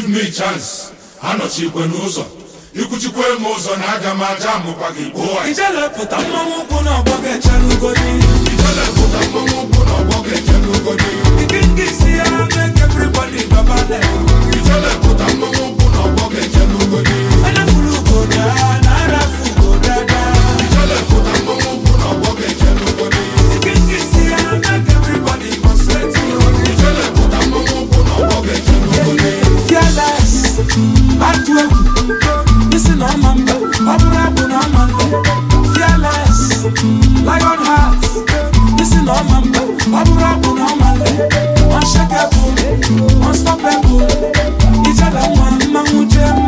give me chance anọchikwe n'ụzọ ikwuchikwe m ụzọ na aga m aja amụkwa gị gbuo ijelepụta mmanwụ ụkwụ na ọgbọ ga-echere ugodi ijelepụta mmanwụ ụkwụ godi. ọgbọ ga-echere ugodi ike nke isi ya na-eke everybody babale ijelepụta mmanwụ ụkwụ na ọgbọ ga-echere ugodi enefuru ugoda na arafu ugodada fearless lion heart isi na ọma mba ọ bụrụ abụ na ọma unshakable unstoppable ijada nwa mmanwụ jee mma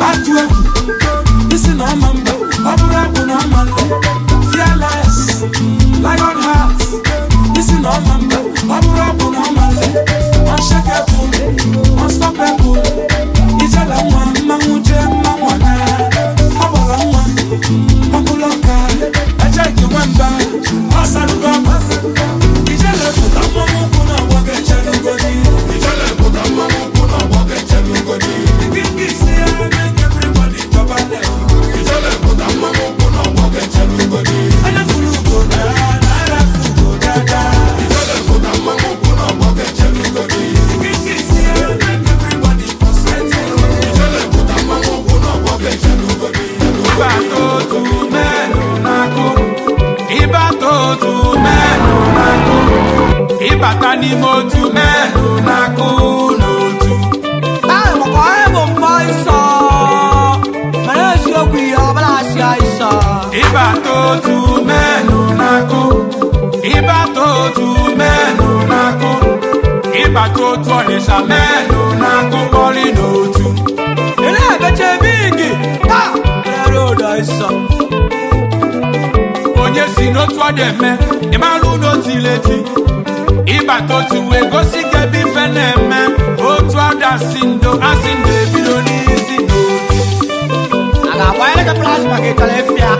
atụ egwu isi na ọma mgbe ọ bụrụ akpụ na ọma nle fearless lion heart isi na ọma mgbe ọ bụrụ akpụ na ọma nle unshakable unstoppable ijela nwa mmanwụ jee mmanwụ na ọ gbara nwa ọbụla ọka ejeghị nwamba ọ sarụgo ni mo tu mẹ́nu máa kú lòtù. ẹ̀mọ̀kọ́ ẹ̀mọ̀ mọ ìsọ̀ mẹ́rin sí okùn ìyá ọ̀bọ̀lá sí àìsàn. ibà tó tu mẹ́nu máa kú ibà tó tu mẹ́nu máa kú ibà tó tu ọ̀nìṣà mẹ́nu máa kú bọ́lí lòtù. ilé ẹ̀gbẹ́jẹ̀ bíìgì tá ẹ̀rọ ọ̀dọ̀ àìsàn onye si n'otu ọ dị eme ịmalụ n'otu ileti ịbata otu wee gosi gị ebe na-eme otu ọ dị asị ndo asị ndo ebido n'isi n'otu a ga-akwanyere gị plasma gị chọrọ efia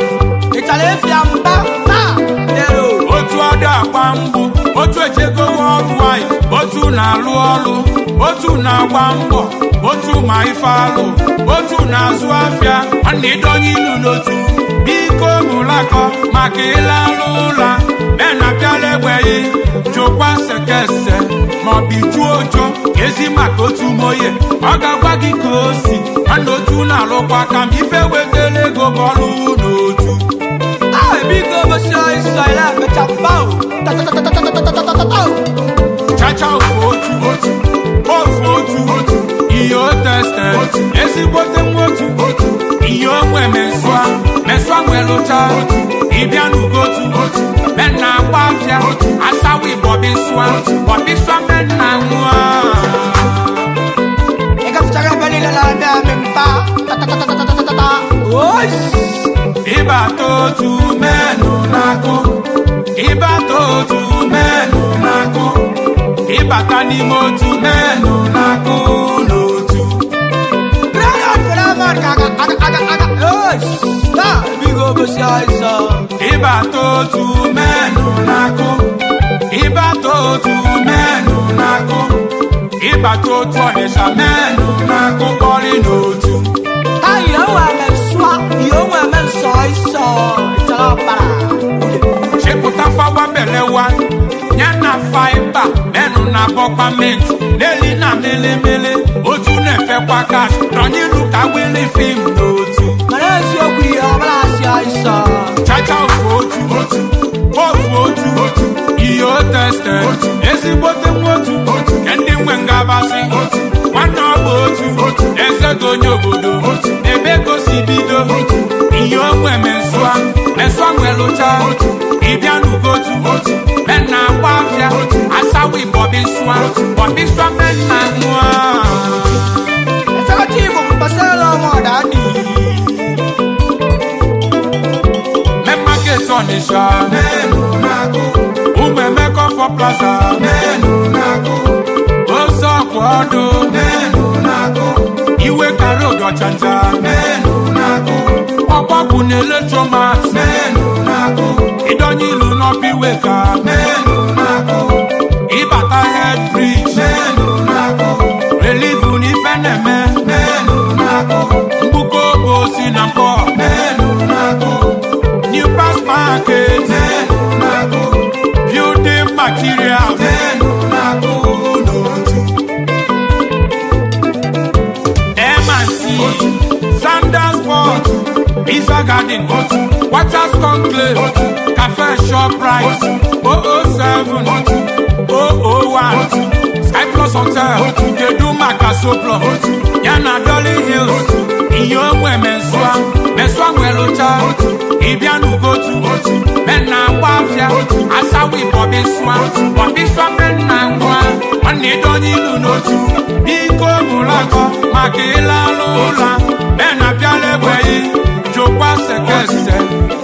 ị chọrọ efia mba otu ọdụ dị agba mgbụ otu ejegowe ọrụ anyị otu na-alụ ọrụ otu na-agba mbọ otu ma ife alụ otu na-azụ afịa ọ na-edonye ilu n'otu biko mụlakọ maka ịla alụ ụla menakala enweghị jụkwa sekese maọbụ ijuo ezi maka otu moye ọ ga-agwa gị ka o si otu na alụkwa aka m ife wetala ego ma ọlụ n'otu chacha ofu otu otu ofu otu otu ihe o teste ezigbote nwa otu otu o gbanwee lụcha ịbịa n'ugotu mena agba afịa asawa ịbọbịsụa bọbịsụa mena nwụọ ịbata otu menụ n'akụ ịbata otu menụ n'akụ ịbata n'ime otu menụ n'akụ n'otu Stop! ro bó ṣe àìsàn. ibà tó tu mẹ́nu nako ibà tó tu mẹ́nu nako ibà tó tu ọ̀nìṣà mẹ́nu nako kọrin n'otu. ayọ̀ wà lẹ́sùá yóò wà mẹ́sọ̀ àìsàn a ṣèkúta fáwọn abẹ́lẹ̀ wa nyana fáibà mẹ́nu nabọ́ pàmẹ́ntì lẹ́lí náà mélémélé ojú náà fẹ́ wákàtí tọ́ nílùú káwé ní fíìmù n'otu. mọ̀lẹ́sì ó kú aláìsàn. chacha òfòótù òfòótù iyo tẹsẹ ezigbo tẹmọtù kẹndị nwe ngabasị nwanne ọgba otu eze gị onye obodo ebe gosi bido ihe onwe mesụa mesụa nwelụcha ịbịa n'ugotu mena agba afịa asawi bọbịsụa bọbịsụa mena nwa Tati bụ mpasara ọmọdani. Onitsha. Nenu nagu. Umemeko for plaza. Nenu nagu. Osoko odo. Nenu nagu. Iwe karo gachanja. Nenu nagu. Ọgbọ́kù na electromax. Nenu nagu. Ìdọ́nyí ìlú náà bí wèka. Nenu nagu. Ìbàtà head bridge. Nenu nagu. Relief ní Fẹ́nẹ̀mẹ́. Nenu nagu. Mkpụkọ obosi na mpọ market. Then Mabu. Building materials. Then Sanders Port. Pizza Garden. Waters Conclave. Cafe shop, Shoprite. 007. 001. Sky Plus Hotel. Deduma Casoplo. Yana Dolly Hills. Iyo mwe meswa. Meswa mwe locha. ịbịanugotu mena agba afịa asawa bọbịsụa bọbịsụa mena nwa nwanne donye ilu n'otu biko mụlakọ maka ịla n'ụla mena bịala egbeghị jokwa sekese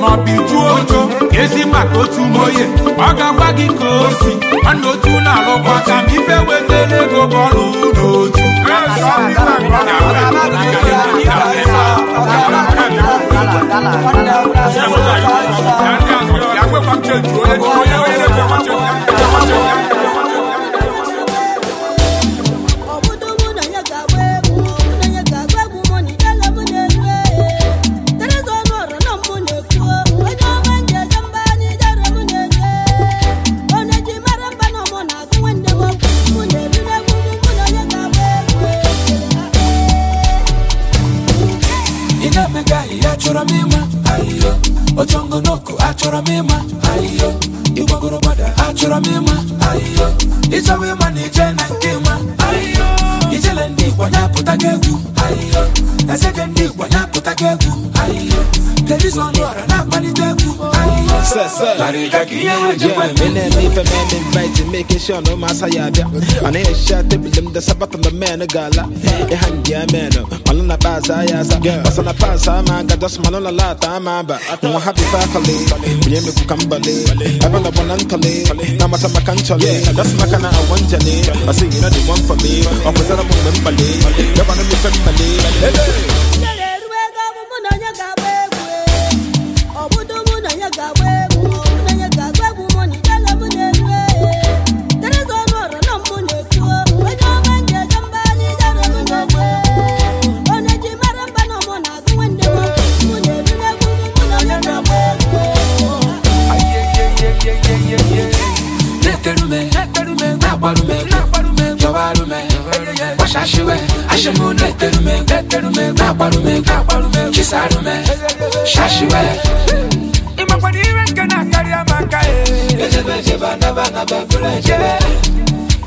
maọbụ ijuo ojo ezi maka otu moye ọ ga-agwa gị ka o si nwanne otu na-alụkwa ka m ife wetara ego bọọlụ n'otu Yàgbé pàtẹ́jù ó lé ní ọyẹ́ ó yẹ lé pàtẹ́jù. achọrọ m ịma ayo ịgbagoro gbada achọrọ m ịma ayo ịchọwa ịma na ije na nke ma ayo ijele ndị igbo ya pụta gị egwu ayo ezeke ndị igbo ya pụta gị egwu ayo kedu a Mene me fe men invite make sure no masa ya bia. da sabata na men gala. E han ya men. baza ya sa. Basa na pasa ma ga dos la ta ma happy fa kale. Mene kambale. Aba na bonan kale. Na mata makanchale. Das makana awanjale. Asi you know the one for me. Opposite of membale. Yabana me fe mbale. Hey! I'm gonna nakwarume you shashiwe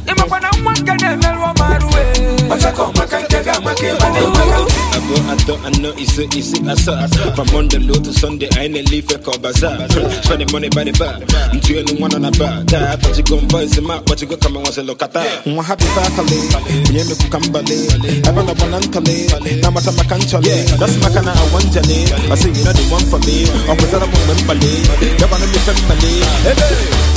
na-akarịa maka kaga maka ba da maka I go I thought I know it's easy I saw From Monday low to Sunday I ain't leave a call bazaar Spend the money by the bar i Until you one on a bar That but you gon' voice him out But you go come and once look at that Mwa happy fakale Mye me kukambale Ebana banantale Namata makanchale That's my kind of one, awanjale I say you know the one for me Officer I'm on membale Yabana mi femmale Hey hey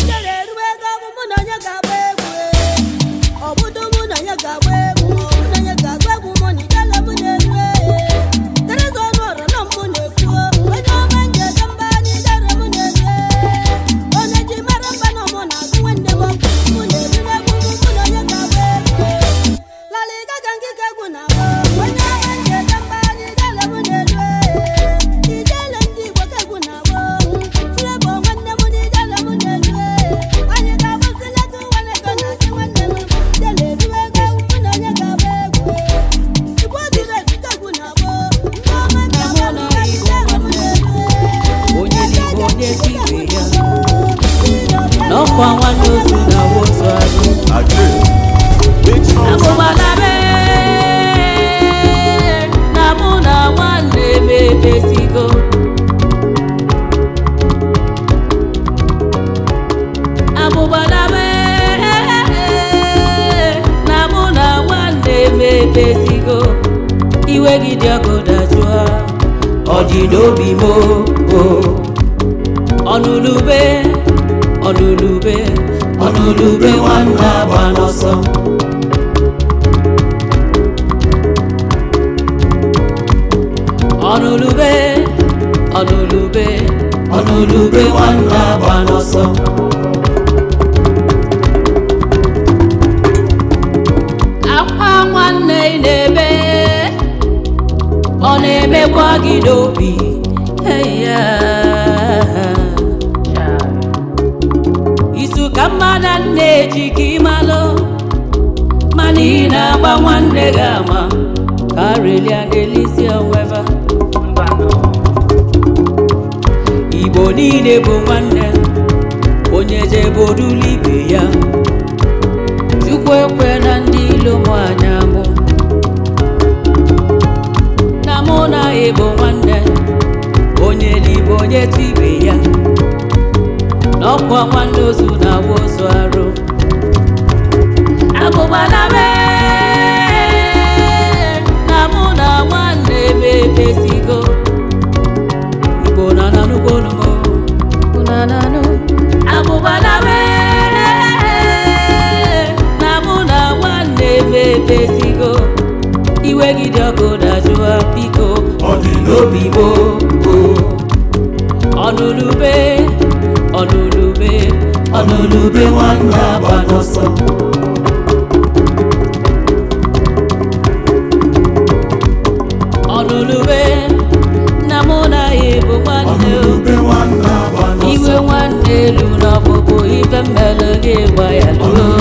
sangue, vai é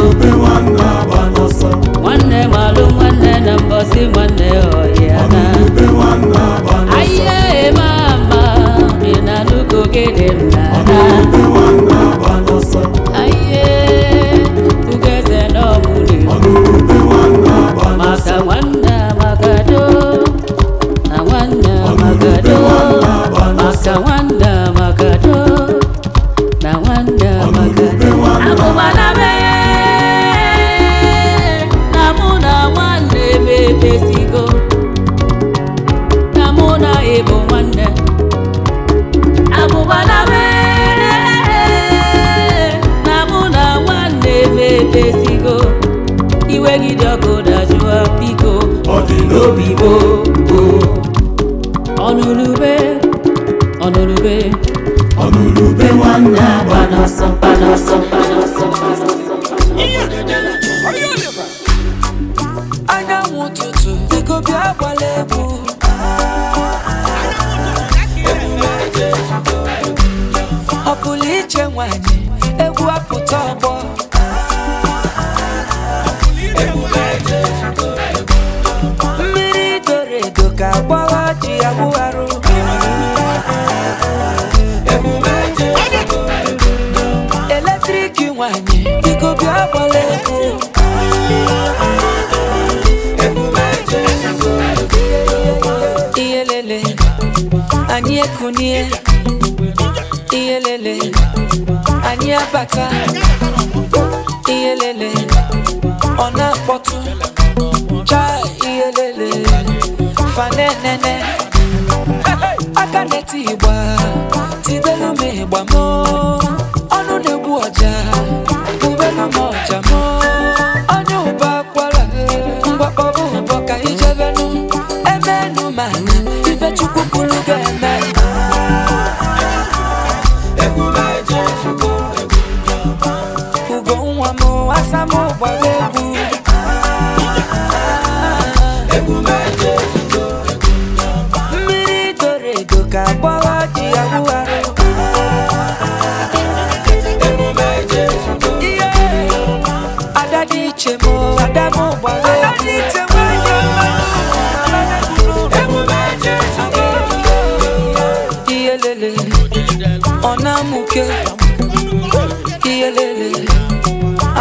nwoke ihe lele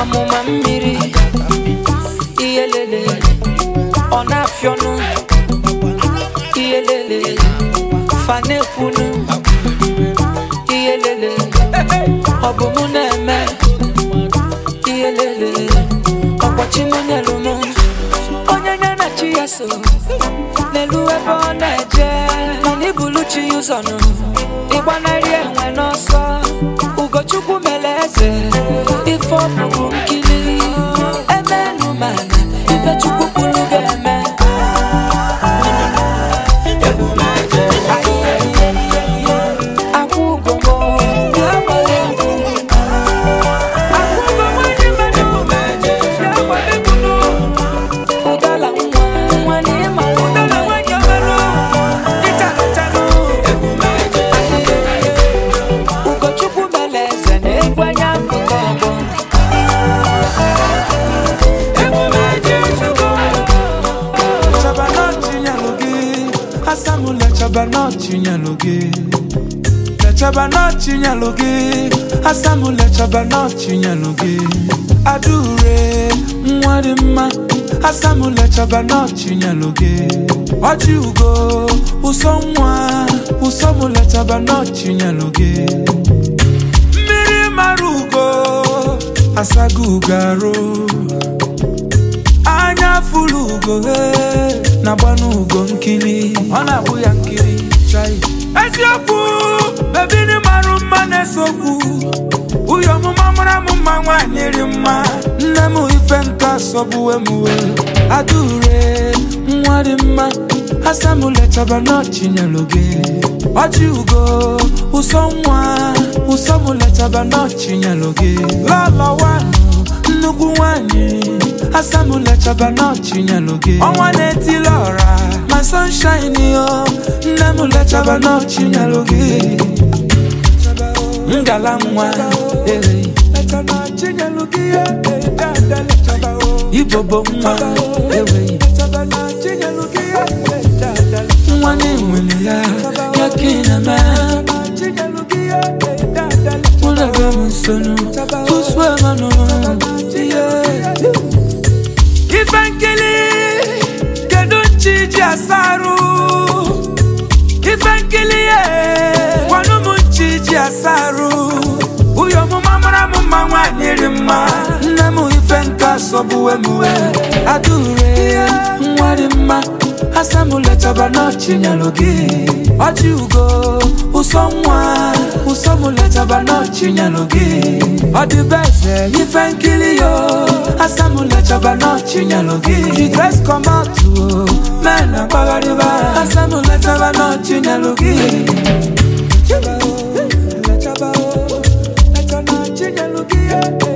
amụma mmiri ihe lele ọ na-afịọnụ ihe lele fanekwunu ihe ọ bụ mụ na-eme ihe ọkpọchi mụ nyelụ m onye nye na chi ya so n'elu ebe ọ na-eje mana ibulu chi ya ụzọ nụ ịgbanarị enwe n'ọsọ ugochukwu mere eze ife ọ bụrụ nkili emenumana ifechukwu gị lechaba n'ọchị gị asamụ lechaba n'ọchị gị adure nwa dị mma asamu lechaba n'ọchị gị ọchị ugo ụsọ nwa ụsọ lechaba gị mmiri mara ugo asago ugo arụ anya furu ugo eh, na gbanu ugo nkiri ọ na-abụ ya nkiri chai eziokwu bebiri marụ mma na-esokwu uyo ọmụma mara m mma nwaanyị ri mma nne m ife nke asọgbuwe emuwe. wee adure nwa dị mma asamulechaba n'ọchinyelụ gị ọjị ugo ụsọ nwa ụsọ ụsọmulechaba n'ọchinyelụ gị lọlọwanụ nnukwu nwaanyị asamulechaba n'ọchinyelụ gị ọnwa na-etila ọra my sunshine, yo. Namula chaba no chinyalugi. Ngala mwa, eh. Chaba chinyalugi, eh, eh. Dada le chaba o. Oh. Ibobo mwa, eh. Chaba chinyalugi, eh, eh. Dada le chaba o. Oh. Mwane mwili ya, yakina ma. Chaba chinyalugi, eh, eh. Dada le chaba o. Oh. Mwana gamu sonu, kuswa manu. Yes. kilie gwanụ m nchi ji asarụ uyo ọmụma mara m mma nwaanyị rị mma nne m ife nka sọgbuwe m we adure nwa dị mma asamụlechaba n'ọchị nyelụ gị ọchị ugo ụsọ nwa ụsọ m lechaba n'ọchị nyelụ gị ọ eze ife nkiri yo asamụlechaba n'ọchị nyelụ gị jidres kọmatụ mena kwakaliva asanulaca vano cinyaluki Yeah.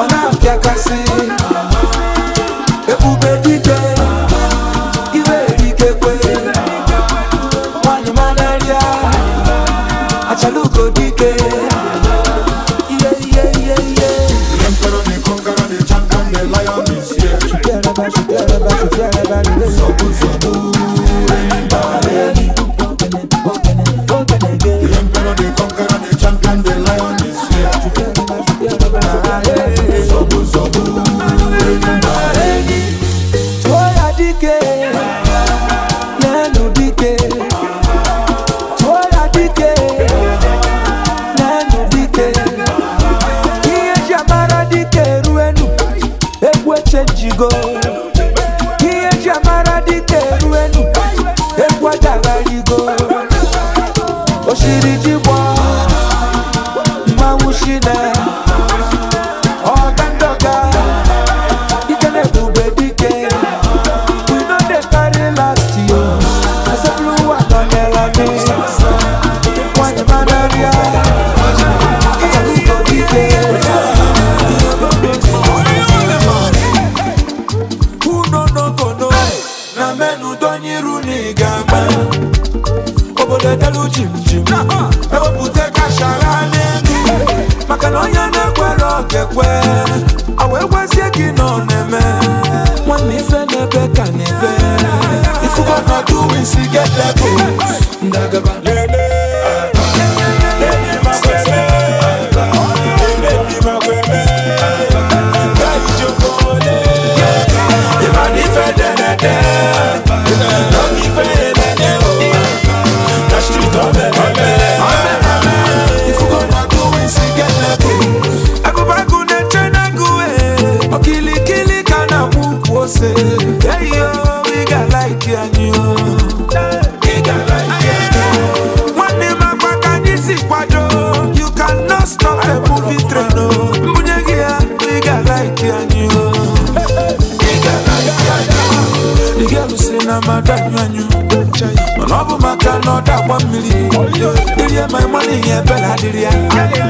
ọ na-apịakasị ebube dike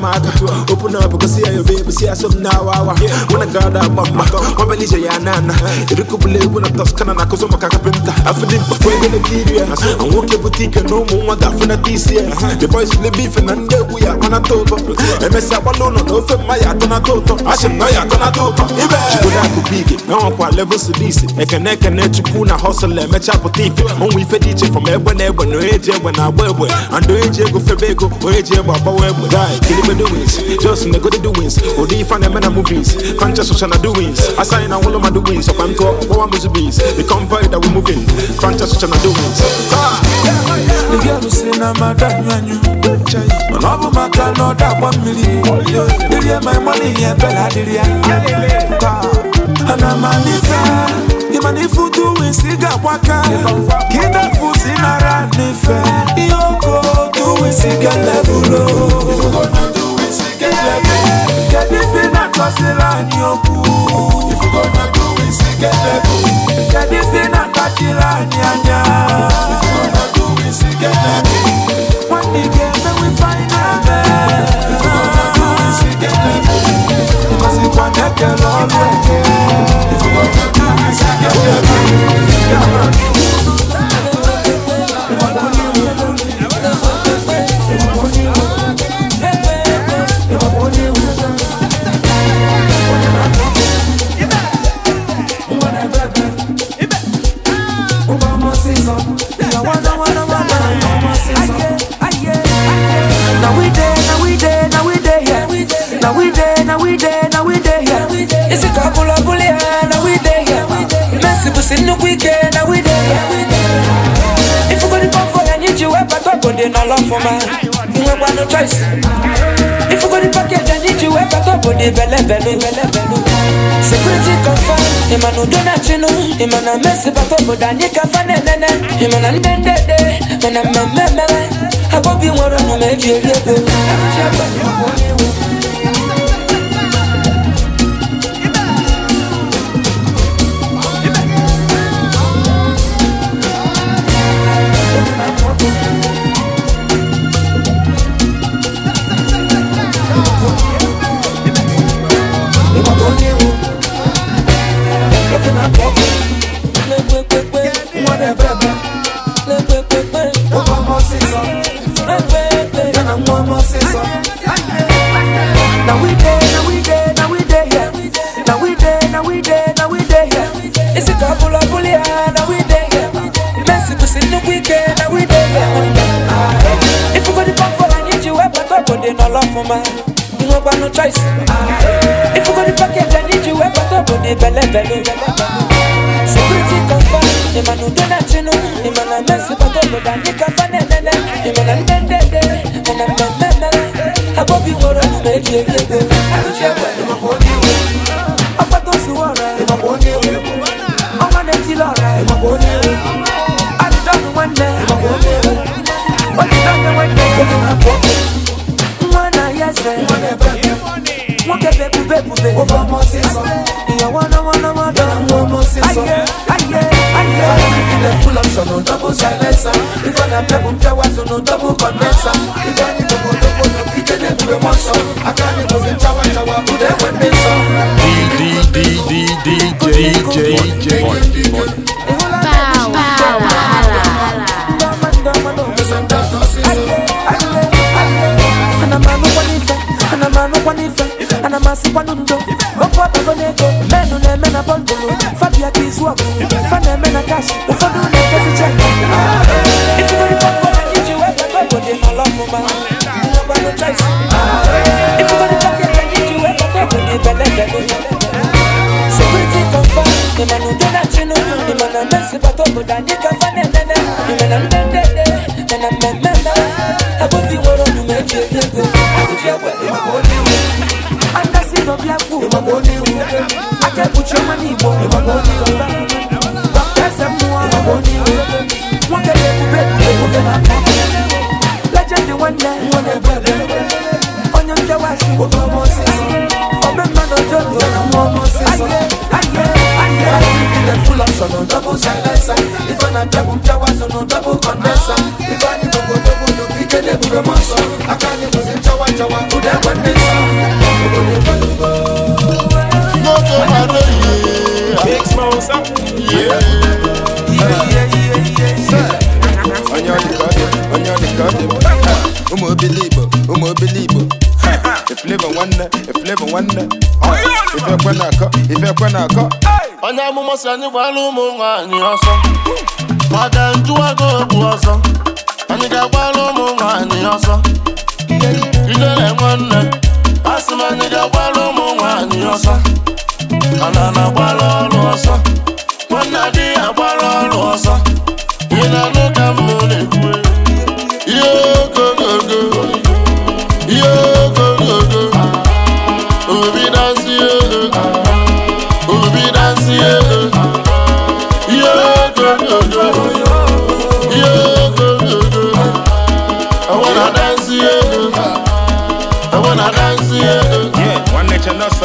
I'm out. Open up, go see your baby, see some now. When I got that mama, my belly say ya nana. It could be when I toss canna, cause I'm a carpenter. I feel it before you get here. I walk your boutique and no more, that for this year. The boys will be beef and then we are on a total. MS alone, no, no, my yard on a total. I should know you're gonna total. Chibula kubiki, na wankwa level silisi. Ekene kene chukuna hustle, mecha potifi. Onwe ife diche from ebwe nebwe, no eje ebwe na webwe. Ando eje go febeko, o eje ebwe abawebwe. Guy, kilimu the doings. Just in the good doings. Or the fan and mena movies. Conscious ocean are doings. Assign all of my doings. Of I'm called Owa Musubis. The convoy that we're moving. Conscious ocean are doings. The girl who say na madam yanyu. Man my maka no da one million. Diria my money here bella diria. Ana manifa. Imani futu that waka. Kida fuzi nara nife. Yoko tu wisiga levulo get level. Get if you not cause it on your pool. If you gonna do it, say get level. Get if you not catch it on your If you gonna do it, say get level. One day get then we find out. If you gonna do it, say get level. Cause it can't get your If you gonna do it, say get level. Yeah, in the weekend, I we there. If you go to pop for, I need you, I but I go there, no love for man. You have no choice. If you go to package, I need you, I but I go there, belle, belle, belle, belle. Security confirm, Emmanuel Donatino, Emmanuel Messi, but I go there, Nika Fanene, Emmanuel Dende, and I'm a member. I will be one of the major. Baby, koko dandika fanenene imenamendede menamemena akoziworo nyumejiezezo akujiakwelimaboneo andasino byaku imaboneo akekuchomanibo imaboneo bakazamua imaboneo mwakelekubekubekubemaka lajende wanne wanebebe onyonja wasiwo omosisi omemanojondo omosisi aye aye aye full of double na jabu mchawa sono double condesa ifanye dogo dogo nopike ne bure maso akanye muzi mchawa chawa kuda kwendesa Moto Mareye Big Smosa Yeah Yeah yeah yeah yeah Sir Anyali kade, anyali kade Umo bilibo, umo bilibo ifileva flavor wonder. nwanne ife kwe na akọ ife kwe na akọ onye amụma si anyị gbara ụmụ nwaanyị ọsọ maka njụwago bụ ọzọ anyị ga-agbara ụmụ nwanyị ọzọ ijele nwanne a sị m anyị ga-agbara ụmụ nwanyị ọzọ ana na-agbara ọrụ ọzọ nwanne adịghị agbara ọrụ ọzọ ị na-anụ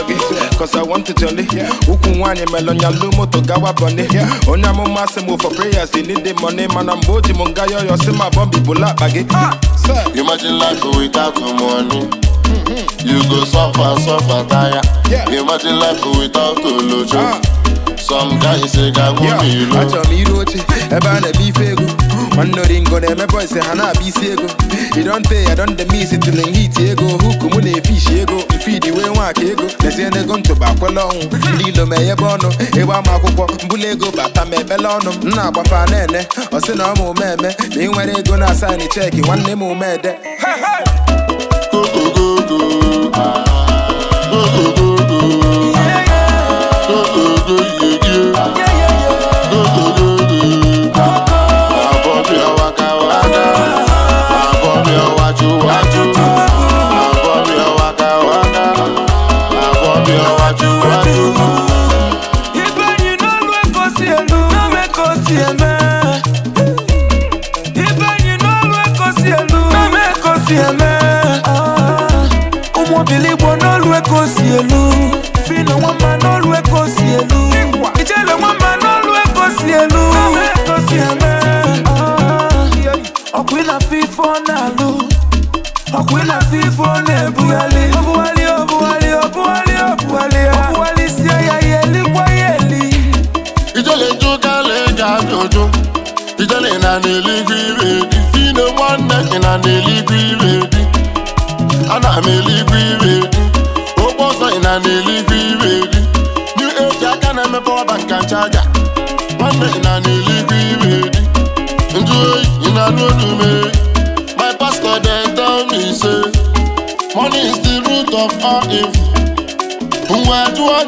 beat Cause I want to jolly Ukun wani melon lumo to gawa bunny Onya mo masse move for prayers They need the money man I'm boji munga yo yo see my bumbi bula baggy ah, Imagine life without no money mm-hmm. You go suffer, suffer, tire Imagine life without Olojo ah. Some guy say gago mi lo me, mi roche, eba ne bi fegu ọnọringo na-emepe ise ha na-abịa isi ego idonte ya dondemisi tili nhiti ego huku mụ na-efishi ego mfidi wee nwaka ego lezie n'ego ntụba kwele ọnwụ ndị ilo ma enyebe ọnụ ebe ama akwụkwọ mbụla ego bata ma ebele ọnụ m na-agbafa na-ene ọ sị na ọmụ meme ma ị nwere ego na asaịnị cheki nwanne m omede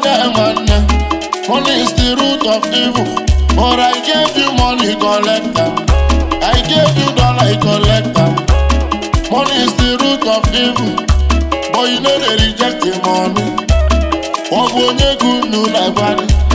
diamond. Money is the root of evil. But I gave you money, collector. I gave you dollar, collect them. Money is the root of evil. But you know they reject the money. What will you do, no, like money?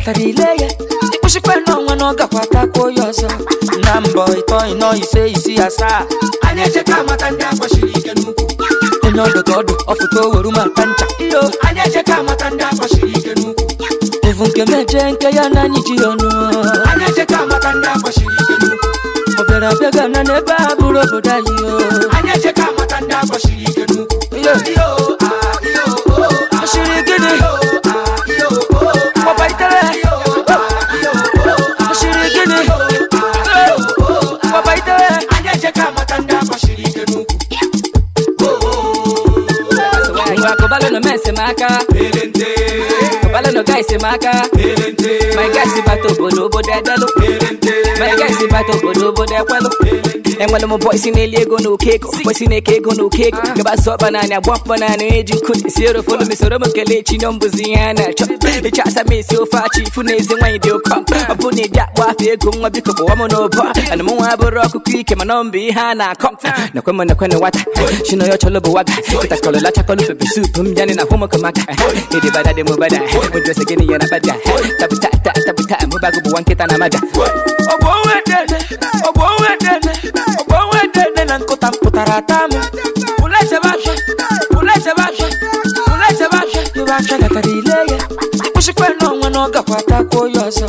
kpatara ile ya ịkpụchikpena ọnwa na ọ gakwa atakwa onye ọzọ na mbọ ịtọ ịnọ ise asaa anyị echeka amata ndị agbachiri ike n'ukwu onye ọdụ ncha iyo anyị amata ndị nke ya na anyị ji ndị agbachiri ike n'ukwu bụrụ obodo anyị maka. Pelente. Kabala no guys maka. Pelente. My guys bato bolo bo de delo. Pelente. My guys bato bolo bo de enwere m bọysi na-eli ego na oke ego bọysi na-eke ego na oke ah. ego gaba sọ banana gba mkpọ na anụ eji nkụ esi erofonu mesoro m kelee chi nyọ mbụzi ihe a na-achọ ịcha asa m esi ofe achị ifu na ezi nwaanyị dị ụkọ ọ bụ na ịdị akpọ afọ ego nwa biko kpọwa m n'ụbọ ana m nwa abụrụ ọkụkọ ike mana ọ mbụ ihe a na-akọ nakwe m nakwe na nwata chino ya chọlọ bụ waga kịtakọlọla chakọlọ pepe soup. m yanị na hụmụka maka ịdịbada dị m bada ụdịrịsị gịnị ya na bada tapụta tapụta mụbago bụ nwa nkịta na amaja ọ bụ onwe dede ọ bụ onwe dede nan kotam kotaratamu Ulese bache, ulese bache, ulese bache Yubache gakarileye Ushikwe no wano gakwata koyoso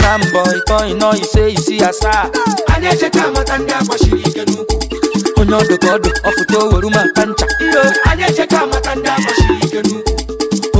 Nambo ito ino ise isi asa Anyeshe kama tanda kwa shirike nuku Onyodo kodo ofuto waruma kancha Anyeshe kama tanda kwa shirike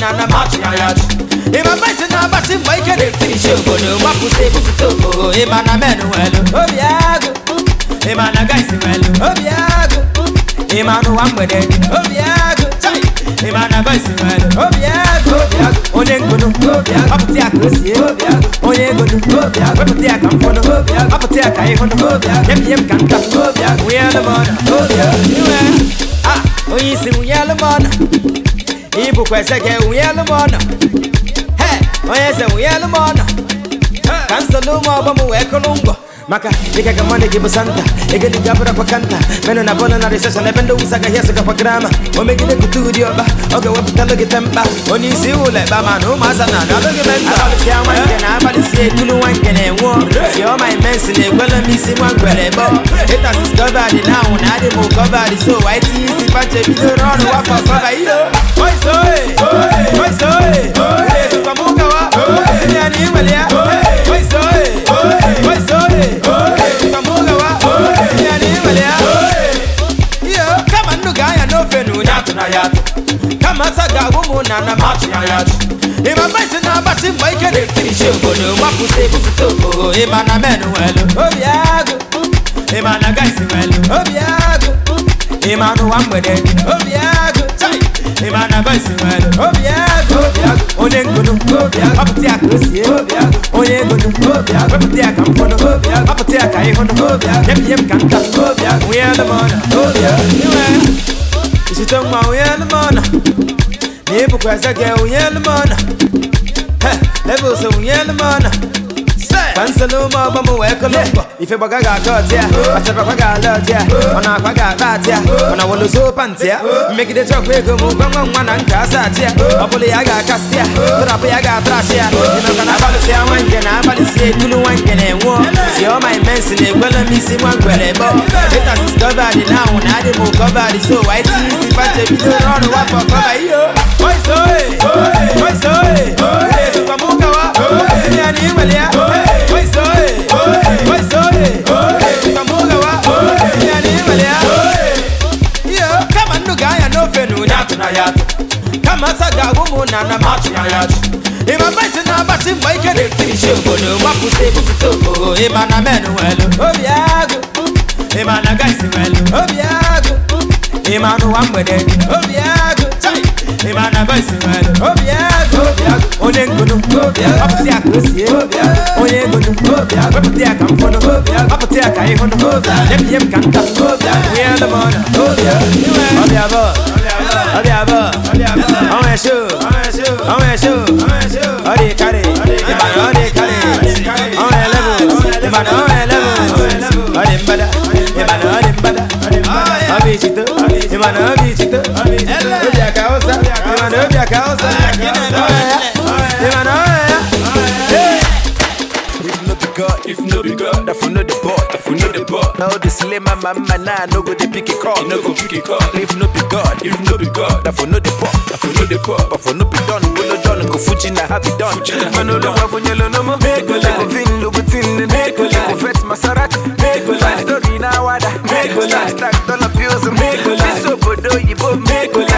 na na match na ya Ima basi na basi mbaike de finish obodo Wapu se busu toko Ima na menu welu Obiago Ima na guys welu Obiago Ima no wambede Obiago Ima na guys welu Obiago Obiago Onye ngunu Obiago Aputi akosi Obiago Onye ngunu Obiago Aputi akamfono Obiago Aputi akaihono Obiago Yem yem kanta Obiago Uyelumona Obiago Iwe Ah Oyisi uyelumona Onye bụkwa eze gị nwunye Hey, m ọnọ onye eze nwunye elu m ọnọ maka ikaga mane gibusanta igeli jabura kwa kanta meno na bona na recession na bendo usaga yesu kwa grama O kutudi oba oge weputa loge tempa oni si ule bama no masana na loge menta abali ama ngene abali si tulu wangene wo si o my men si ne gwele mi si mwa gwele bo it has discovered now na dey mo covered so why it is if I check video run wa for cover you know oi so oi oi so oi oi so kamuka wa si ni ani welia oi yatu kama saga humu na na machi na yatu ima mbaisi na basi mwaike ni finishi ugodo wapu sebu sitogo ima na menu welu obiago ima na gaisi welu obiago ima no wamwede obiago ima na gaisi welu obiago obiago onye ngodo obiago waputi akosi obiago onye ngodo obiago waputi akamfono obiago waputi akaihono obiago yem yem kanta obiago we are the mother obiago Is it girl, isitongwa uyelimona nibukweseke uyelimona lebuse uyelimona Pansalo mo bo mo weko lombo Ife boga ga got ya Ase pa ga got ya Ona kwa ga bat ya Ona wolo so pant ya Make the truck we go mo gwa gwa gwa na nka sa ya Opole ya ga cast ya Trap ya ga trash ya Ina kana balu se awanke na balu se kulu wanke ne wo Si o my men si ne gwelo mi si mwa gwele bo Later discover it now na the move cover the so Why ti if I che bi do run wa for cover yo Oi so oi Oi so oi Oi so kwa muka wa Asini ani imelia Oi yatu kama saga gumu na na machu na yatu ima maisi na basi mwa ike de finishe obodo mwakute bufutoko ima na menu welu obi agu ima na gaisi welu obi agu ima nu wa mgbede obi agu chai ima na gaisi welu obi agu onye ngunu ọpụta ọdẹ abọ ọmọ ẹṣọ ọmọ ẹṣọ ọdẹ kárẹ ìbàdàn ọdẹ kárẹ ọmọ ẹlẹbù ìbàdàn ọmọ ẹlẹbù ọdẹ nbada ìbàdàn ọdẹ nbada ọbẹ ìṣìtò ìbàdàn ọbẹ ìṣìtò ọdẹ àkàwọsà ìbàdàn ọdẹ àkàwọsà. na all the slimmer mama na no go dey pick a call. E no go pick a call. If no be God, if no be God, that for no dey pop, that for no dey pop, but for no be done, go no done, go fuji na happy done. Mano lo não funye lo no mo. Mekola. Go vin lo go tin ne. Mekola. Go vet Maserati. Mekola. Story na wada. Mekola. Stack dollar bills. Mekola. This obodo yibo. Mekola.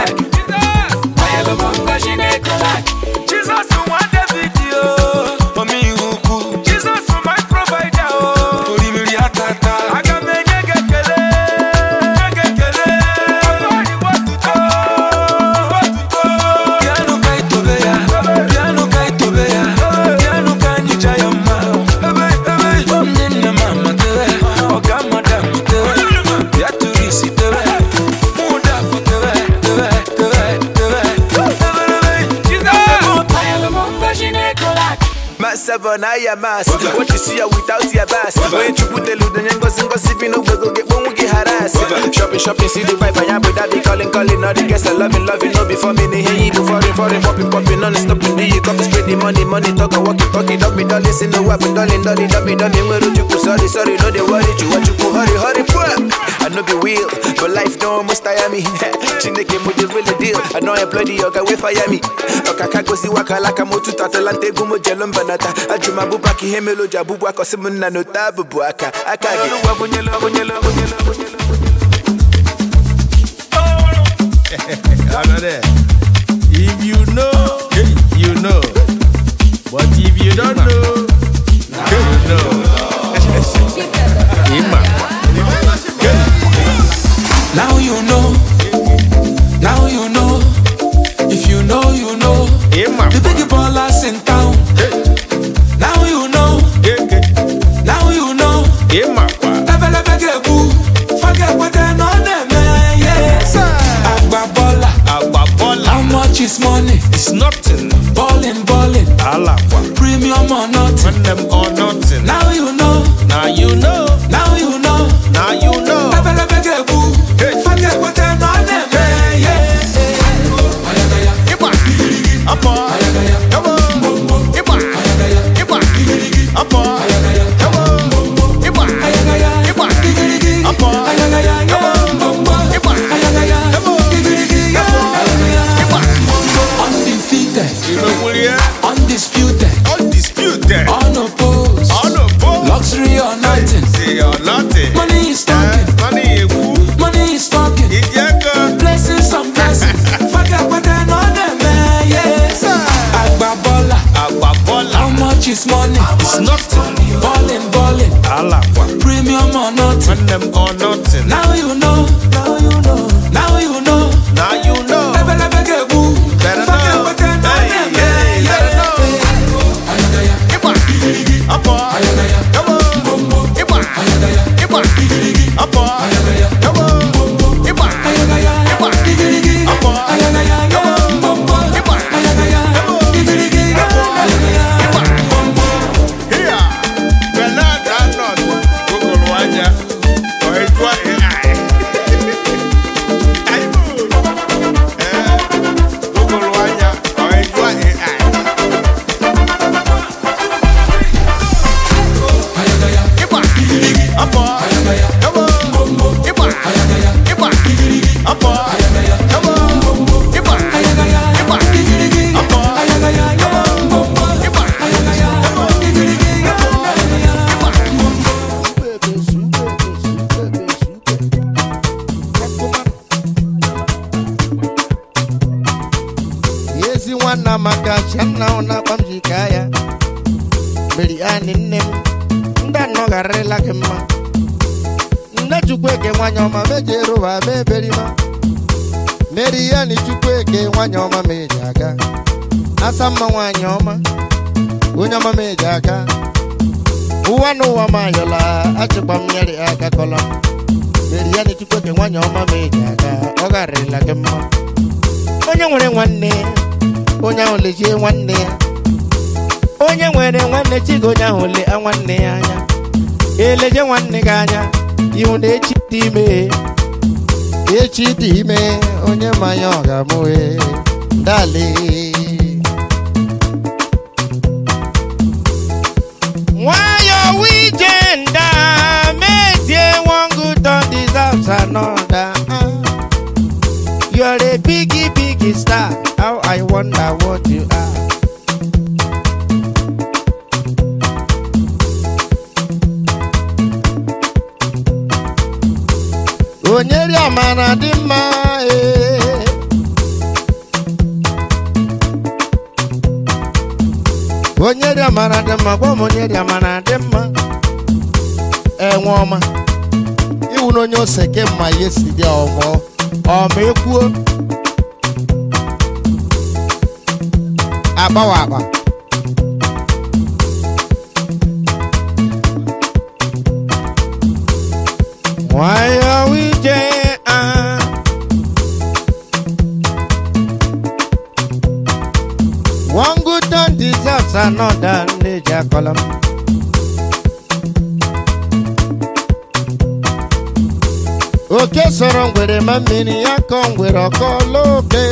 on higher mass. What you see are without your bass. When you put the loot and go sing, go sipping over, go get one, we get harassed. Shopping, shopping, see the vibe, I am with be calling, calling, all the guests are loving, loving, no before me, they hear you, foreign, foreign, popping, popping, non stop do you copy, spread the money, money, talk, walk it, talk it, don't be done, listen, no weapon, darling, darling, don't be done, sorry, sorry, no, they worry, you, what you go, hurry, hurry, poor. no be real But life don't must tire me Chineke mo the real deal I know I bloody yoga we fire me Okaka go si waka laka mo tuta talante gumo jelon banata Ajuma bubaki hemelo jabubu ako simu no tabu buaka Akagi If you know, you know But if you don't know i ebelebe ga-egbu how much is money it's nothing balling balling premium or nothing When them or nothing now you know now you know aka ụwa na ụwa m ayọla achịkwa m nyere aka kọla meri ya na echukwu nwaanyị ọma ma eji aka ọ gharịla gị mma onye nwere nwanne onye ahụ nwanne ya onye nwere nwanne chigo onye ahụ le nwanne ya anya eleje nwanne gị anya ihu na echi dị ime echi dị ime onye mmanya ọ ga-amụhe another. Uh. You're a biggie, biggie star. How I wonder what you are. Onyeri amara dị mma eh. Onyeri amara dị mma gwa m onyeri amara dị mma A woman. wu n'onye ose ke mma ya esi dị ọgọ ọ ekwuo agbawa agba one good turn deserves another nleji akọla m oke sọrọ ngwere ma mmiri ya kọ ngwere ọkọla oke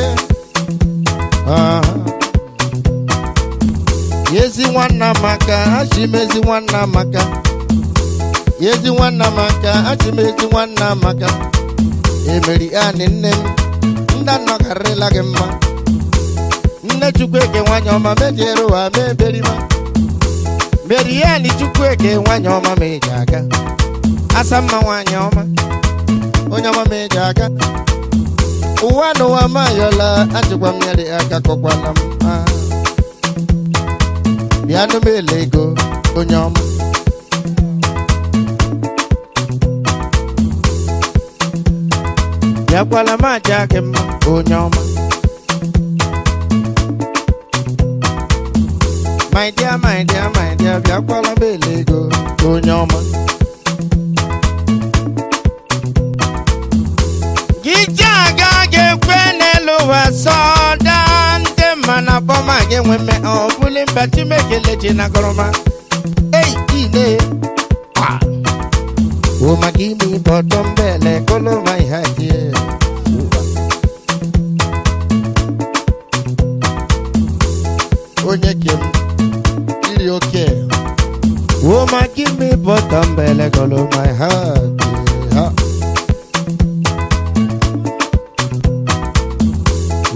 Yezi nwanna maka achị m ezi nwanna maka Yezi nwanna maka achị m ezi nwanna maka emeri anị nne m ndị anọkarịla gị mma nne chukwueke nwanyị ọma mediere ụwa ma eberima meri anị chukwueke nwanyị ọma ma ị ga-aga asa mma nwanyị ọma onye ọma ị eji aka ụwa n'ụwa ma ayọla ajụkwa nyere aka kọkwana m bịa ah. nụ m ele ego onye ọma bịakwala m aja gị mma onye ọma my dear my dear my dear bịakwala m ele ego onye ọma ekwe n'elu ụwa sọ daa ndị mma na bọma gị enwe mme ọ bụli mba Chineke leji na gọrọma ei ile umakini bọtọ mbele koloma ihatie onye kem iri oke umakini bọtọ mbele koloma ihatie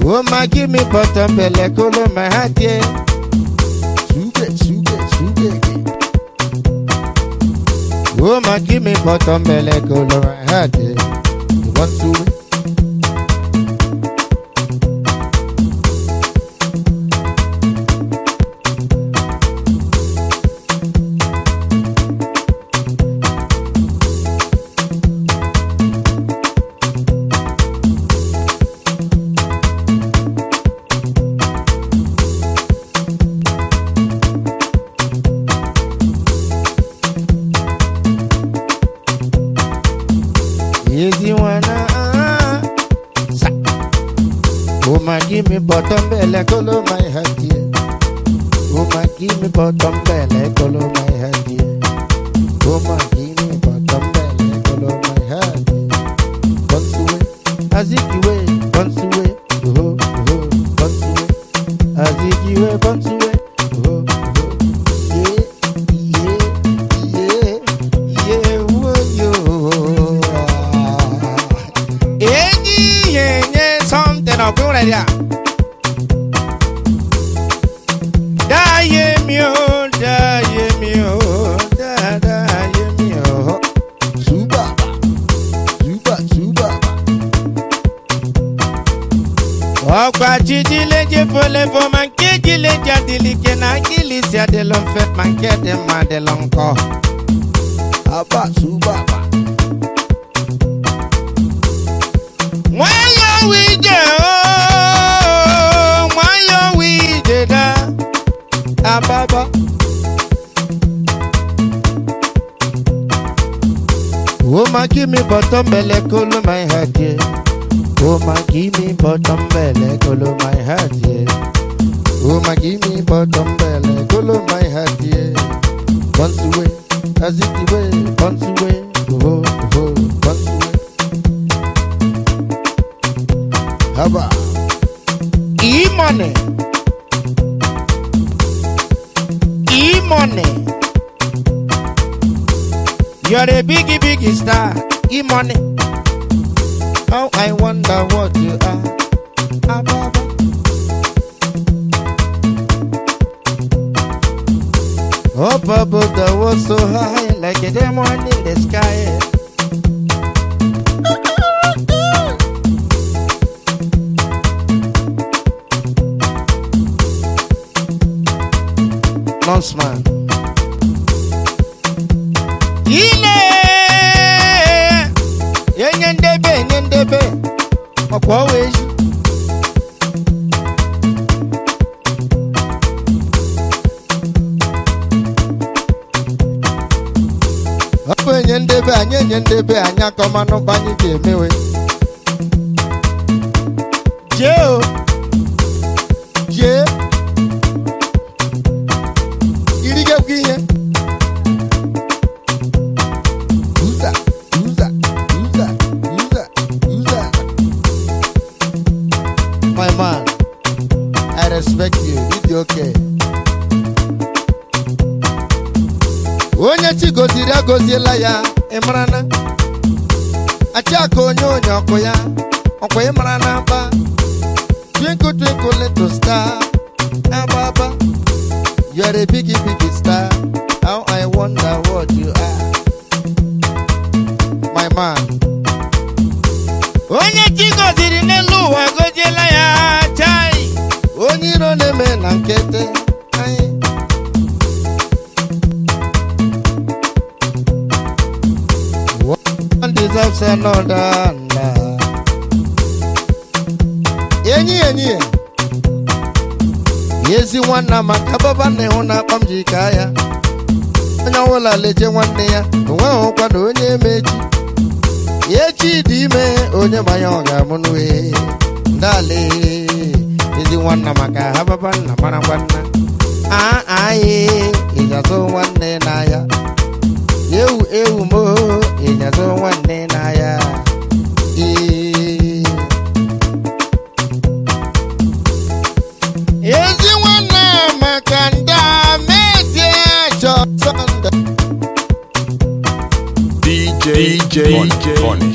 Woman, give me butter belly, color my hat, yeah. Sugar, sugar, sugar. Woman, give me butter belly, color my hat, yeah. You want to bottom belle kolo my heart here. Oh my, give me bottom belle kolo my heart here. Oh my. give me bottom belly, cool my head, yeah. Oh Woman, give me bottom belly, cool my head, yeah. Oh Woman, give me bottom belly, cool my head, yeah. Once away, as it away, once away, oh, oh, once away. Haba, e-money, e-money. You're a biggie, biggie star. E money. Oh, I wonder what you are. Ababa. Oh, Baba, that was so high, like a diamond in the sky. Launchman. ọ̀pọ̀ wẹ̀ṣù. ọ bụ enye ndebe anyị enye ndebe anyị akọmanụ mgbe anyị ga-emewe jee Yeah. Yeah. nye ezi nwanna maka baba nna ịhụ na akpa m ji ka ya onye ọbụla leje nwanne ya onweghị ụkwa na onye emechi ya echi dị ime onye manya ọ ga-amụ n'uhe ndale ezi nwanna maka ha baba nna mara nwanna anyị ịnyazụ nwanne n'ahịa ewu ewu mo ịnyazụ nwanne n'ahịa DJ. J. Funny.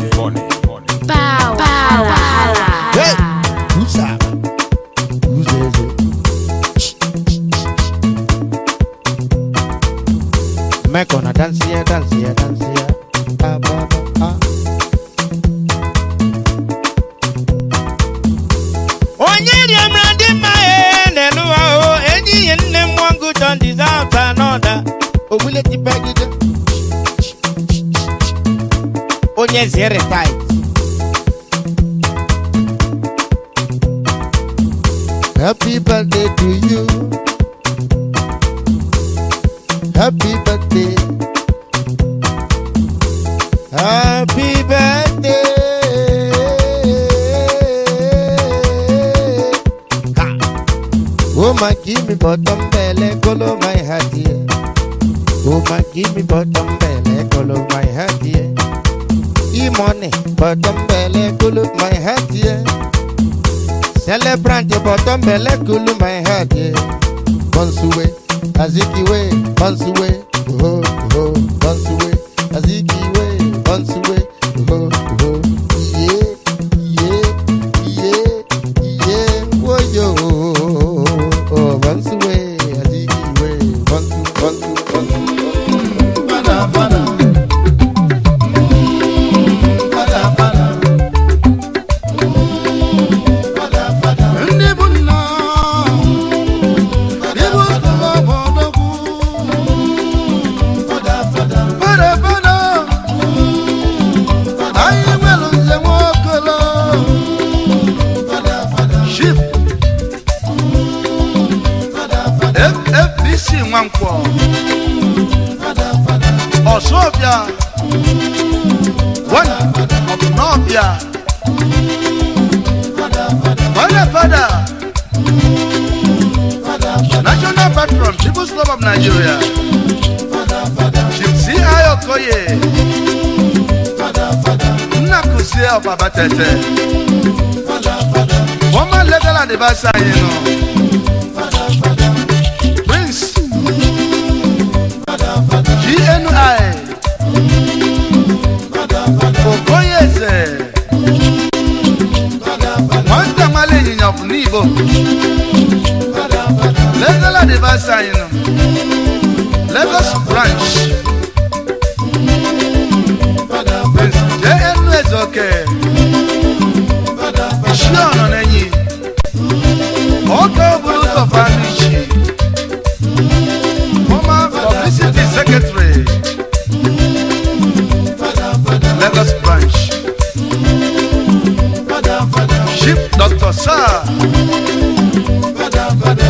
Nwankwo Ọ̀ṣọ́bíà wọ́n Ọ̀bùnọ́bíà wọ́lẹ̀ fada national patron people's club of Nigeria Jimsi Ayokoye Nnakusie Ọbaba Tẹ̀tẹ̀ former legal adviser yìí nù. GNI Okoyeze wọ́n ń tẹ̀wọ́n lè yìnyàn fún ní ìbò lẹ́gọ́lá dé Lagos branch JNS ọ̀kẹ́ iṣẹ́ ọ̀nà lẹ́yìn ó kẹ́ òbúrú sọ̀fà secretary us branch chief doctor sir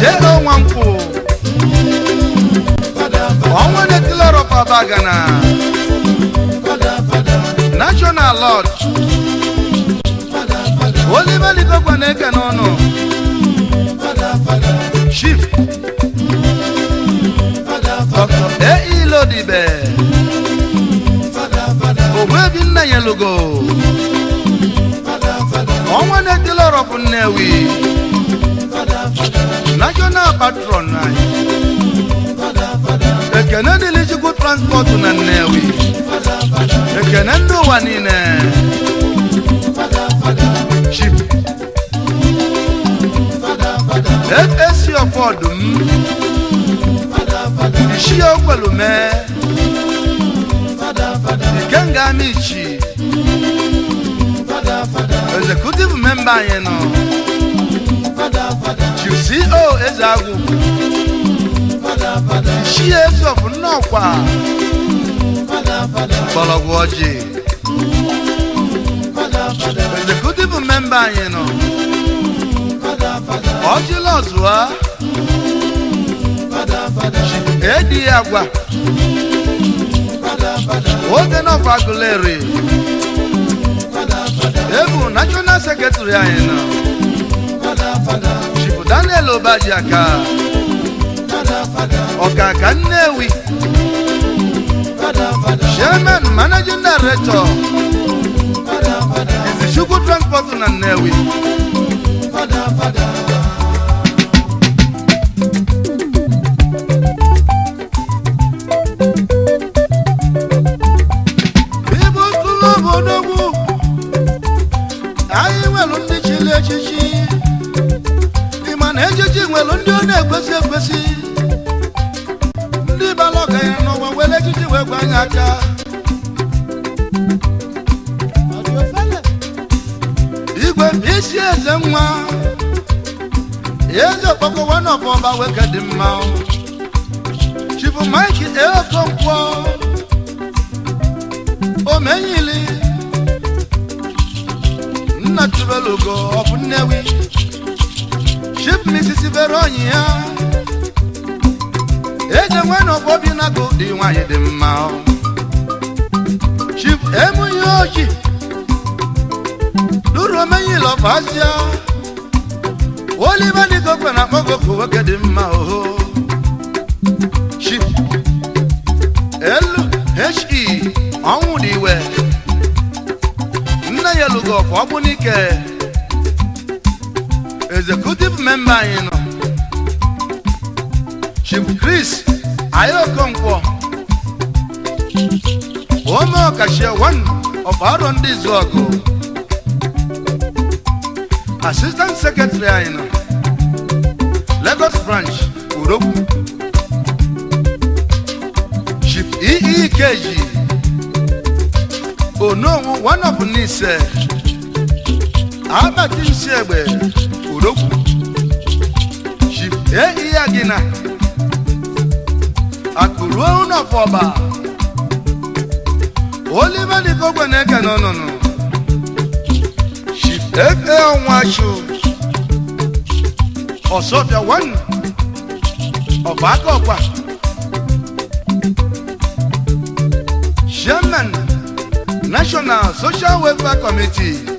J.O. Nwankwo ọnwa na-etile rọpa bagana national lodge Oliver Ligogwa na-eke n'ọnụ chief elugo ọnwa na-etili ọrọ bụ Nnewi national patron anyị ekene dịrị Chukwu transport na Nnewi ekene ndị ụwa niile chip esi ọfọdụ m isi okwelu mee ikenga m ichi executive member yẹn nọ ceo oh, ezeagu chief of nnọkwa mgbọrọgwụ ọjị executive member yẹn nọ ọjị lọzụa edi agwa oge nọkwa gụlere ebu national secretary anyị Fada chibu daniel obadiaka ọkaka nnewi chairman managing director Fada fada. ezechukwu transport na nnewi na-ekwesị ekwesị ndị bara ọgaranya n'ụwa were ejiji wee gwa anyị aka igwe isi eze nwa eze okpokọwa na ọbọba weke dị mma chifu mike eokonkwo omenyili nna olugo ọbụ nnewi Chief Mrs. Veronyi ya eje nwe n'ọgbọ bi na dị nwanyị dị mma Chief Emuyi Oji Duromeyi Lọfazia Oliver Nigokwe na akpọgokwu nwoke dị mma oho Chief he ọnwụ dị iwe nne ya lụgo ọfọ n'ike Executive member memba anyị nọ Chief Chris Ayokonkwo Ome Okashie one of Aro ndị oh. Assistant Secretary anyị nọ Lagos Branch Urogwu Chief EEKG Ononwu one of Nise si egbe. odogwu jibee Iyagina gị na akpụruo ụnọfọba olive dịka ogbe na-eke n'ọnụnụ ọnwa e chụ ọsọbịa wanu ọba aka ọkwa chairman national social welfare committee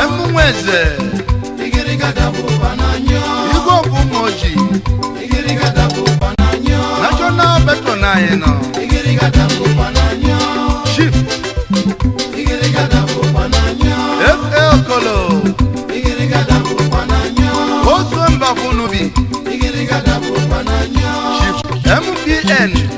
emunwe eze igwe ọbụ ụmụ na chief fa okolo chief mpn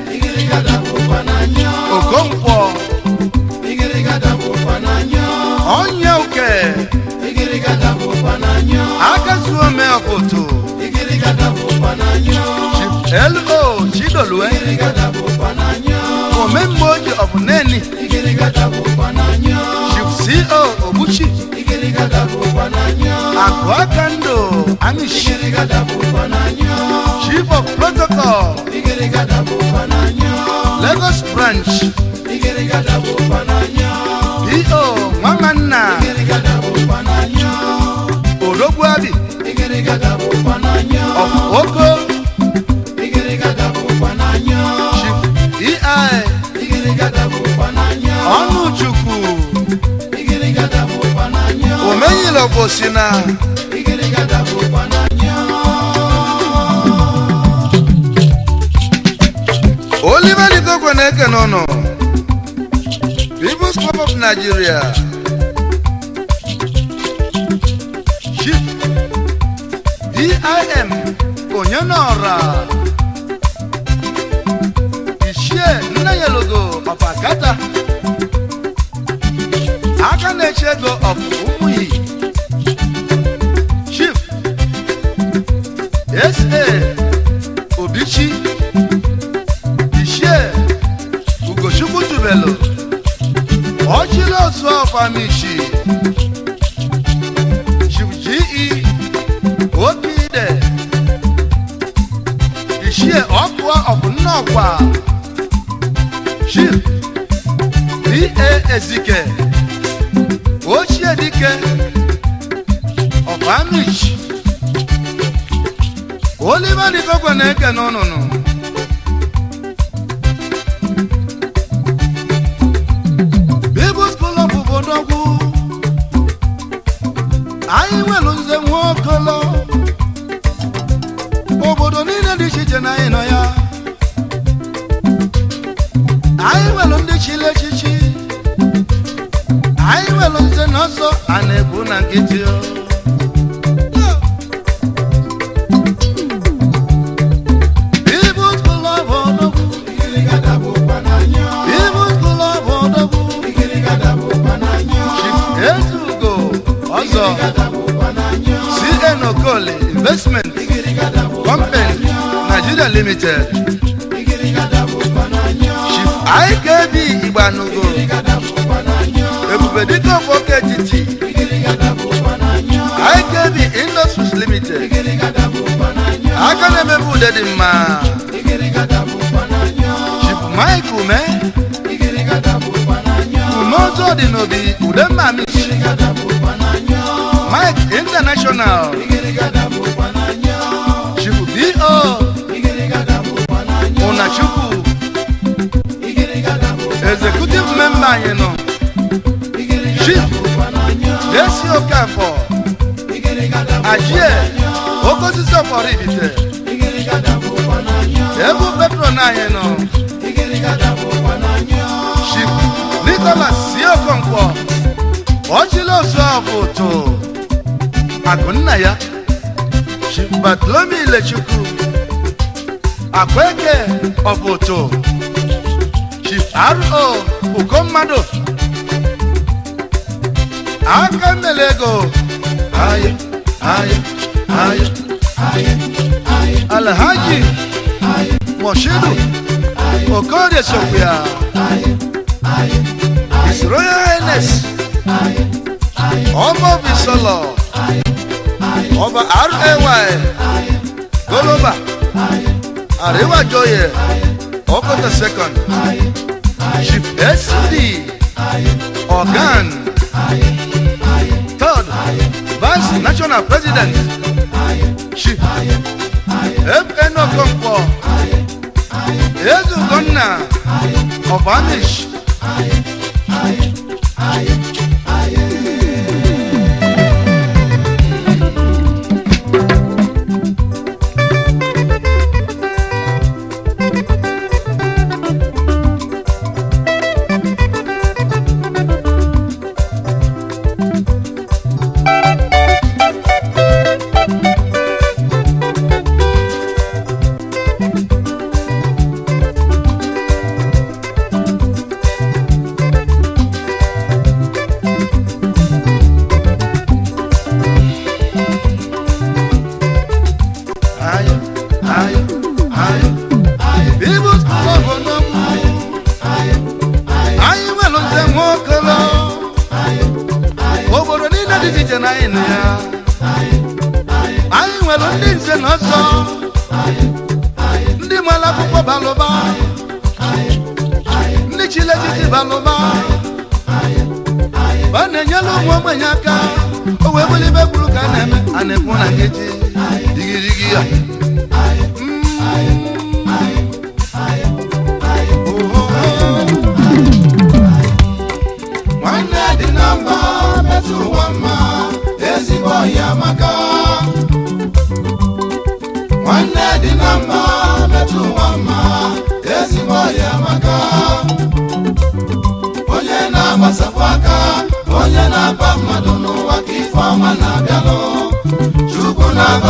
koto. Ikirigada bo pananyo. Elmo Chidolue. Eh? Ikirigada bo pananyo. Omemboji of Neni. Ikirigada bo pananyo. Shipsi O Obuchi. Ikirigada bo pananyo. Akwakando Amish. Ikirigada bo pananyo. Chief of Protocol. Ikirigada bo pananyo. Lagos Branch. Ikirigada e bo pananyo. P.O. ọ bụ si na Oliver Ligokwe na na-eke ụnụ People's Club of Nigeria DIM onye n'ọra Ichie Nna Yelogo Papa Kata nwaanyị nọ jesi okafọ ajie okosisi ọfọrọ ibite ebe petron anyị nọ chikwu nikolas si okonkwo ọchịla osu ọfụ tụ akụ nna ya batlomi ilechukwu akweke ọbụtụ chief ro uko mmadụ aka nlele ego anyị anyị anyị anyị alhaji moshidu okorie sokwuya his royal highness ọmọ bisọlọ ọba ray goloba àríwájọyẹ ọkọtẹ second. Esri Organ Third Vice National President Shi FN Okonkwo Ezu Gonna of Anish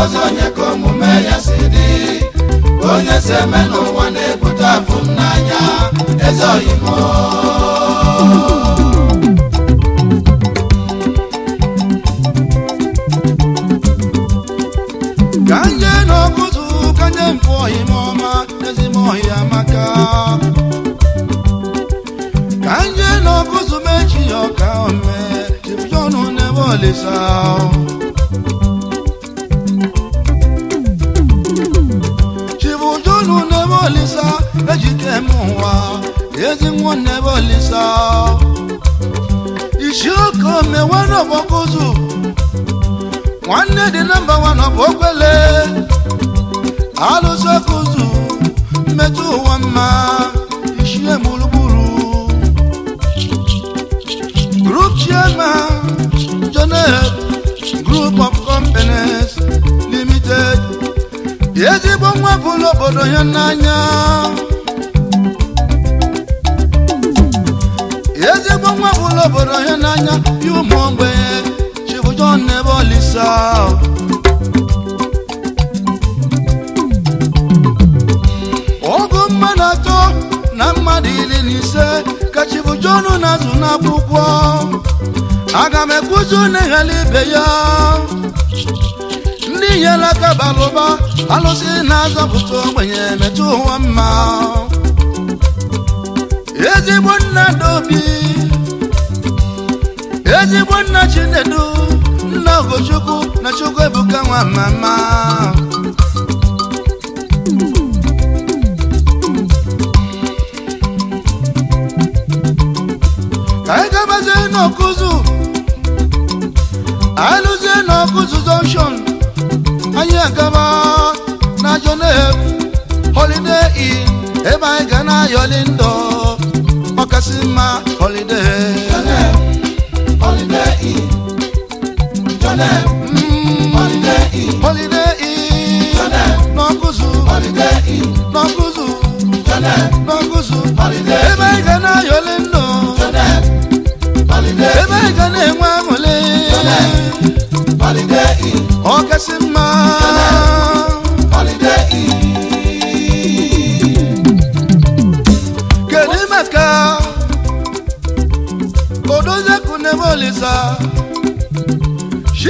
ọzọ onye ka omume ya si dị onye si eme n'ụwa na-ebute afụ n'anya eze oyibo ka nye n'ọkụzụ ka nye mpụ oyime ọma ezigbo ọhịa amaka ka nye n'ọkụzụ ya ọka ome chibiọnụ n'ebe olisa bolisa ejite mụwa ezi nwanne bolisa isioko mewere ọbọkụzụ nwanne dị nọmba wan ọbọkwele alụsokụzụ mmetụ ụwa mma ọnwụ ebula obodo ya n'anya ezigbo nwa ebula obodo ya n'anya ya ụmụ ogbenye chibujon ebe olisa ọgụ mmadụ atọ na mmadụ iri na ise ka chibujon na-azụ n'akwụkwọ aga m ekwuzi na ibe ya ihe bara ụba alụsị na-azọpụta ogbenye metụ ụwa mma ezigbo nna dobi ezigbo nna chinedu nna ogochukwu na chukwu ebuka nwa mama anyị gabazie n'ọkụzụ alụzie n'ọkụzụ junction nkama na Jonebu holiday inn ebe anyị ga na ayọli ndọ ọkasị mma holiday. Jonebu holiday inn Jonebu mm-hmm. holiday inn holiday inn Jonebu n'ọkụzụ holiday inn n'ọkụzụ Jonebu n'ọkụzụ holiday inn ebe anyị ga na ayọli ndọ Jonebu holiday inn ebe anyị ga na enwe aṅụle. Jonebu holiday inn ọkasị mma.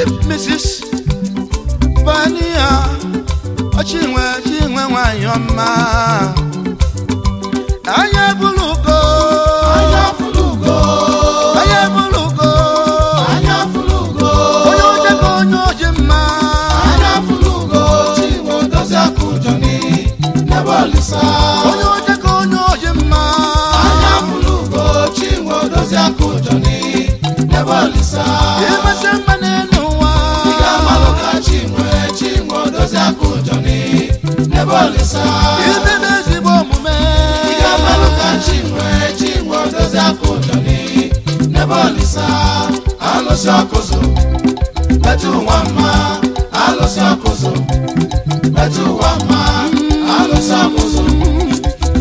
Chief Mrs. Bania Chinwe Chinwe Nwanyọma Anya bulugo Anya bulugo Anya bulugo Anya bulugo Onye oje ka onye oje mma Anya bulugo Chinwe Odozi Akụjọni Nebe Olisa ebolisa ibebe ezigbo omume ihe meluka chinwe chinwe odozi aka ụjọni n'ebolisa alụsị ọkụzụ metụ ụwa mma alụsị ọkụzụ metụ ụwa mma alụsị ọkụzụ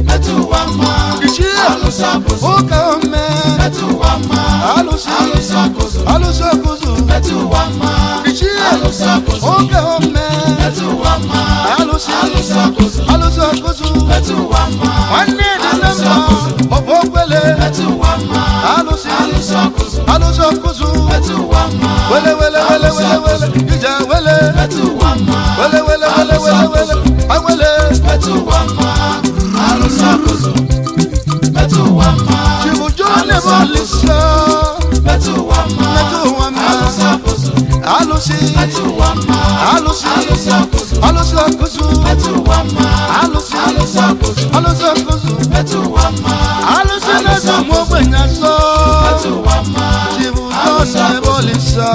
metụ ụwa mma alụsị ọkụzụ ụka ome metụ ụwa mma alụsị ọkụzụ alụsị ọkụzụ metụ ụwa mma alụsị ọkụzụ ụka ome metụ ụwa mma alusakoso alusakoso ẹtù wà má wọn ní ìdílé mọ òfò gbélé ẹtù wà má alusi alusakoso alusakoso ẹtù wà má wẹlẹ alusi alusi alusi akusu alusi alusi akusu alusi lẹsọ mọ gbẹnyà sọ tìbùtọ ní ẹbọ lè sọ.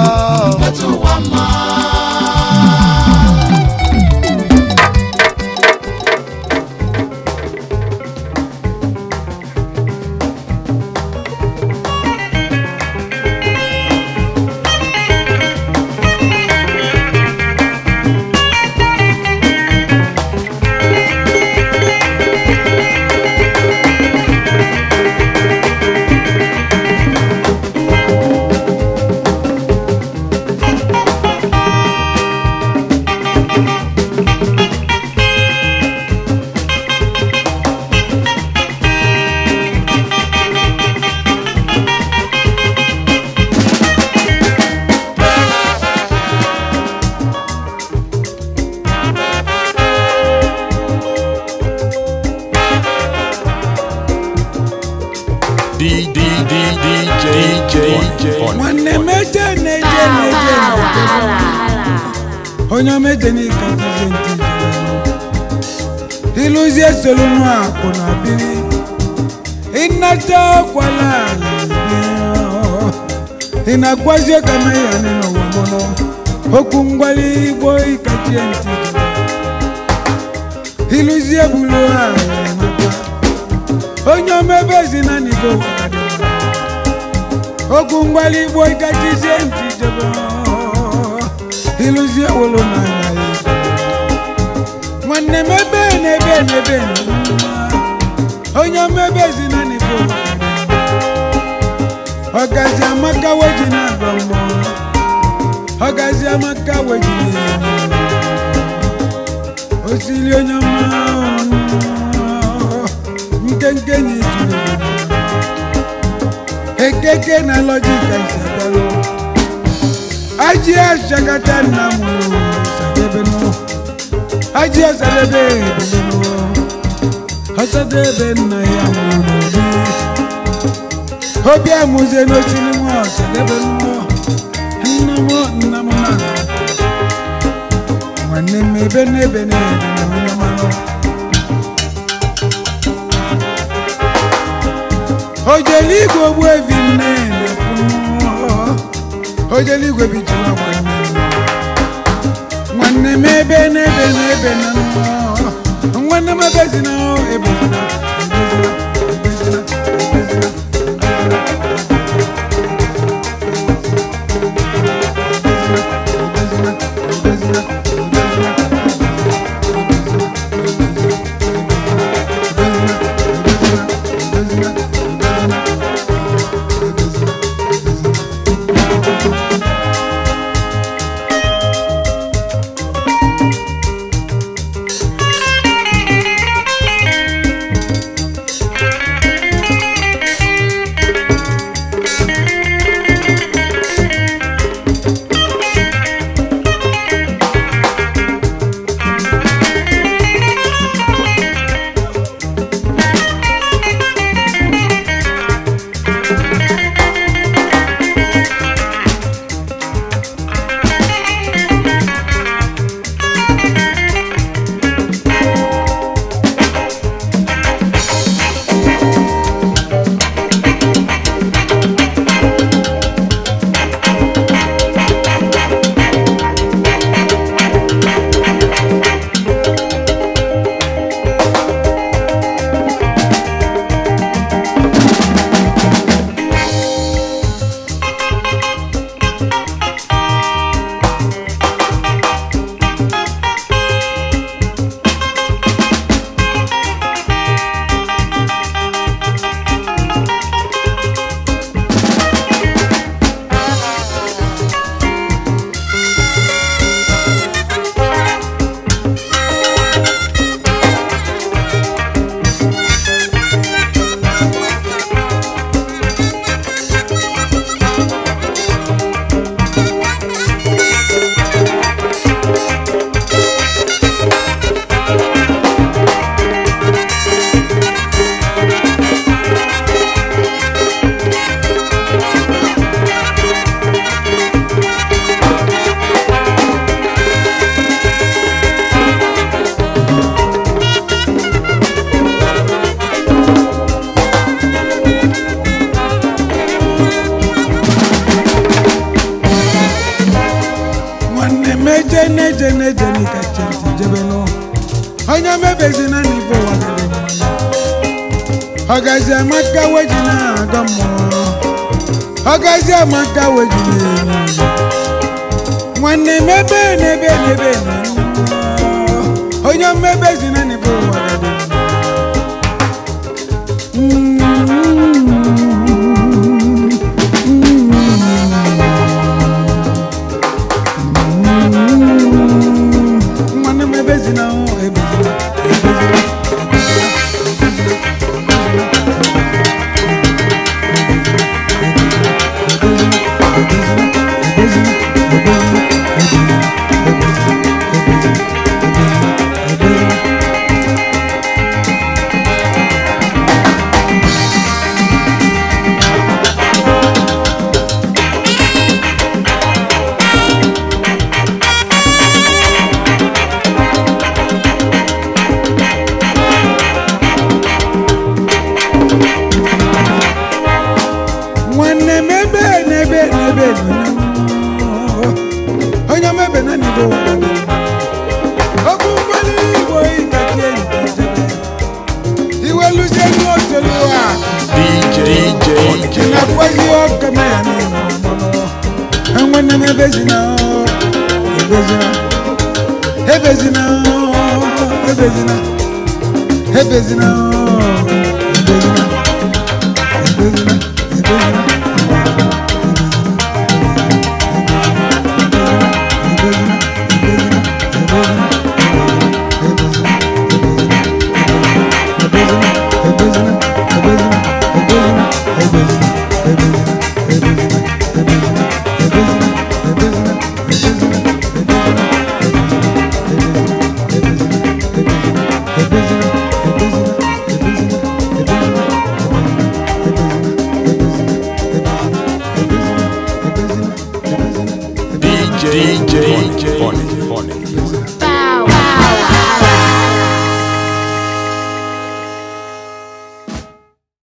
ala igbo gajizie njijebe ịlụzie wolo n'anya nwanne m ebe n'ebe n'ebe onye mmebe ezina n'igbo ọgazi amaka weji na-agọ mmụọ ọgazi amaka weji osili onye mma nke nkenyi keke na lọjik aịzagbalụ ajị achakata nna m sadebenu ajị ọsadebe ebelenu ọsadebe nna ya mụrụ obi amụzie n'osiri m ọsadebenu nna m nna m na nwanne m ebe n'ebe n'ebe ojeli igwe ogbuebi nne ojele igwe bijila nwanne m ebe n'ebe n'ebe na nwanne m ebe ebe na. na-eje na-eje n'ike chenti jebe n'ụwa onye mebezina n'ife ụwa ọgazi amaka weji na-agọ mmụọ ọgazi amaka weji na-enye nwanne mebe n'ebe n'ebe na onye mmebezina